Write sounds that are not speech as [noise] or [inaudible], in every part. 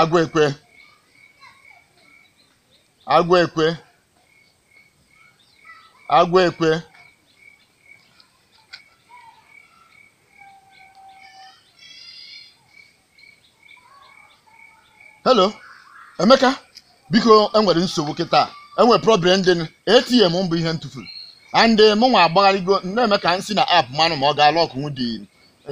agụekwe agwa ekwe hello emeka biko enwere nsogbu kịta enwere problem dị atm mbụ ihe m ndị and eh, m nwa agbagharịgo nne emeka nsi na ap manụ ma ọ ga-alụ ọkụnwụ dị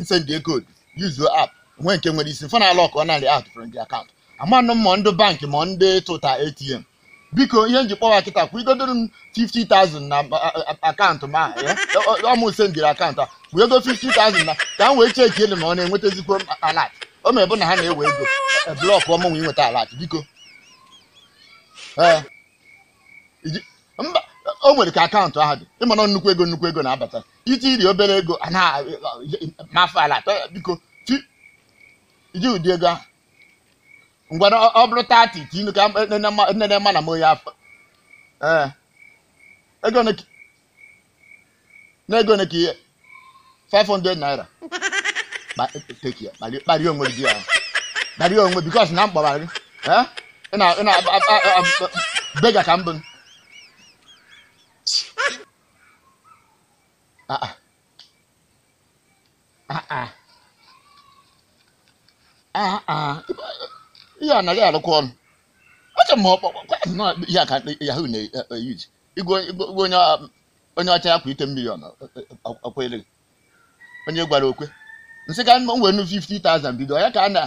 nsendị code yuzuo app nwe nke nwere isi mfe na alọkụ narị a tụfere ndị akaụntụ amanụ mmụọ ndụ ndị bankị ma ndị tụta atm biko ihe njikpọwa kịta kwụgodoro m 50,000 na akaụntụ m ọmụ ise m jiri akaụntụ a ego 50,000 na ka m wee cheki ele ma ọ na-enwetazikwo alat o ma bụ na ha na-ewe ego e, blọkụ ọmụnwe inweta alat biko o nwere ka akaụntụ ahụ dị ịmana nnukwu ego nnukwu ego na-abata iti iri obere ego anaghị mafa alat biko ji ụdị ego ahụ ngwana ọ bụrụ tati tinu ka nne na mana m oyi afọ ee ego na n'ego na ka ihe 500 naira kparịa onwe gị ahụ kparịa onwe bikos na mkpọbara gị ị na-bega ka mbụ ah, ah. ihe anaghị arụkwa ọrụ acha na-eyuji igwe onye ọcha ya kwa ite mmiri ọnụ onye gwara okwe nsị ka nwere 50,000 bido ya ka na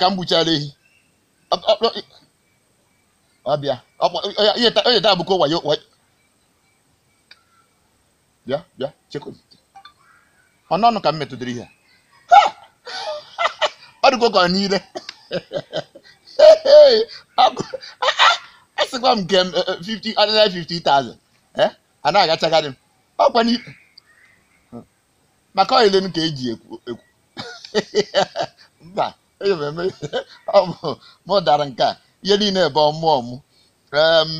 ka m ehi ọbịa bịa bịa chekwa ka m ihe arụgo ka niile asịkwa ah, ah, m nke 50 50,000 m eh, eh, eh, ọkwa maka ọyịle m ka eji ekwu ekwu [laughs] mba e mụ dara nke a ihe niile bụ mmụọ m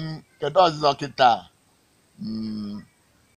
kedu ọzụzọ kịta hmm,